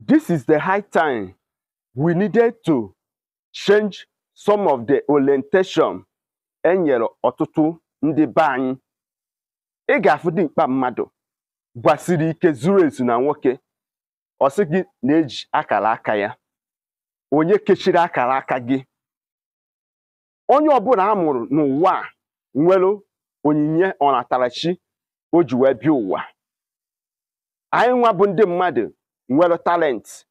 This is the high time we needed to change some of the orientation e ọtụtụ ndị be anyị. Ị ga-afụ dimkpa mmadụ gbasiri ike zuru ezu na nwoke ọsị gị na-eji akara aka ya onye kechiri akara aka gị onye ọbụla a mụrụ n'ụwa a nwere onyinye ọnatarachi o ji wee bịa ụwa anyị nwa bụ ndị mmadụ nwere talent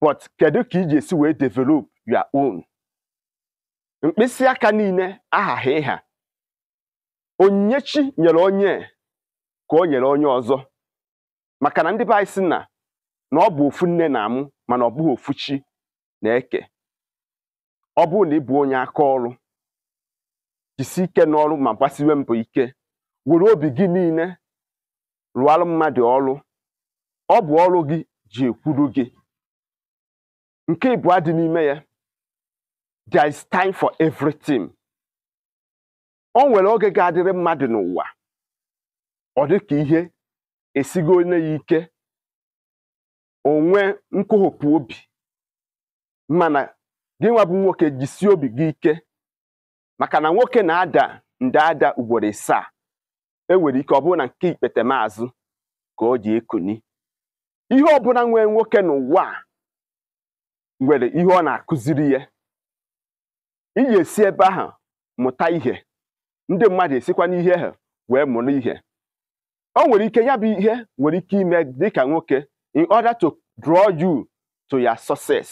but kedu ka iji esi wee develop your own mkpịsị aka niile aghaghị ịha chi nyere onye ka o nyere onye ọzọ maka na ndị be na na ọ bụ ofu nne na-amụ mana ọ bụghị ofu na-eke ọ bụrụ na ịbụ onye aka ọrụ jisi ike n'ọrụ ma gbasiwe mbọ ike were obi gị niile rụọrụ mmadụ ọrụ ọ bụ ọrụ gị ji ekwuru gị nke ịbụọ dị n'ime ya there is time for everything o nwere oge ga-adịrị mmadụ n'ụwa ọ dị ka ihe esigo onye ya ike onwe nkụhụkwa obi mana gị nwa bụ nwoke jisie obi gị ike maka na nwoke na-ada nde ada ugboro ịsaa e nwere ike ọ bụrụ na nke ikpete maazụ ka ọ dị ekuni ihe ọbụla nwee nwoke n'ụwa a nwere ihe ọ na-akụziri ya iji esi ebe ahụ mụta ihe ndị mmadụ esikwa n'ihe ha wee mụrụ ihe ọ nwere ike ya bụ ihe nwere ike ime dịka nwoke in order to draw you to your success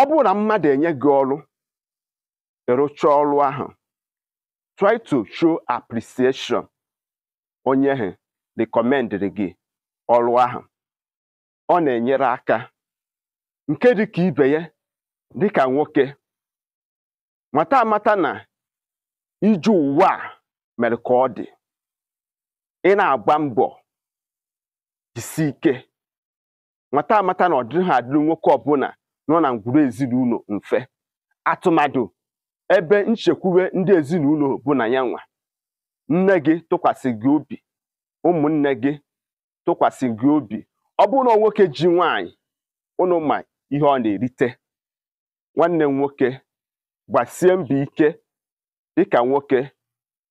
ọ bụrụ na mmadụ enye gị ọrụ ịrụcha ọrụ ahụ try to show appreciation onye ha recommend gị ọrụ ahụ ọ na-enyere aka nke dịka ibe ya dịka nwoke nwata amata na ije ụwa a mere ka ọ dị ị na-agba mbọ jisi ike Nwata amata na ọ dịghị adịrị nwoke ọbụla nọ na ngwuru ezinụlọ mfe atụmadụ ebe nchekwube ndị ezinụlọ bụ na ya nwa nne gị tụkwasị gị obi ụmụnne gị tụkwasị gị obi ọ bụrụ na nwoke ji nwaanyị ụnụ ma ihe ọ na-erite nwanne m nwoke gbasie mbọ ike dịka nwoke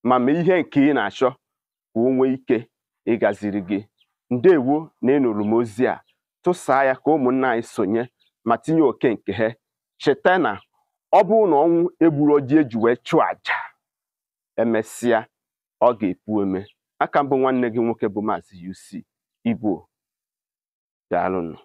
ma mee ihe nke ị na-achọ ka o nwee ike ịgaziri gị ndewo na ịnụrụ m ozi a tụsaa ya ka ụmụnna anyị sonye ma tinye oke nke ha cheta na ọ bụrụ na ọnwụ egburu oji e eji wee chụọ aja emesịa ọ ga-epu eme aka mbụ nwanne gị nwoke bụ Maazị UC Igbo, daalụnụ.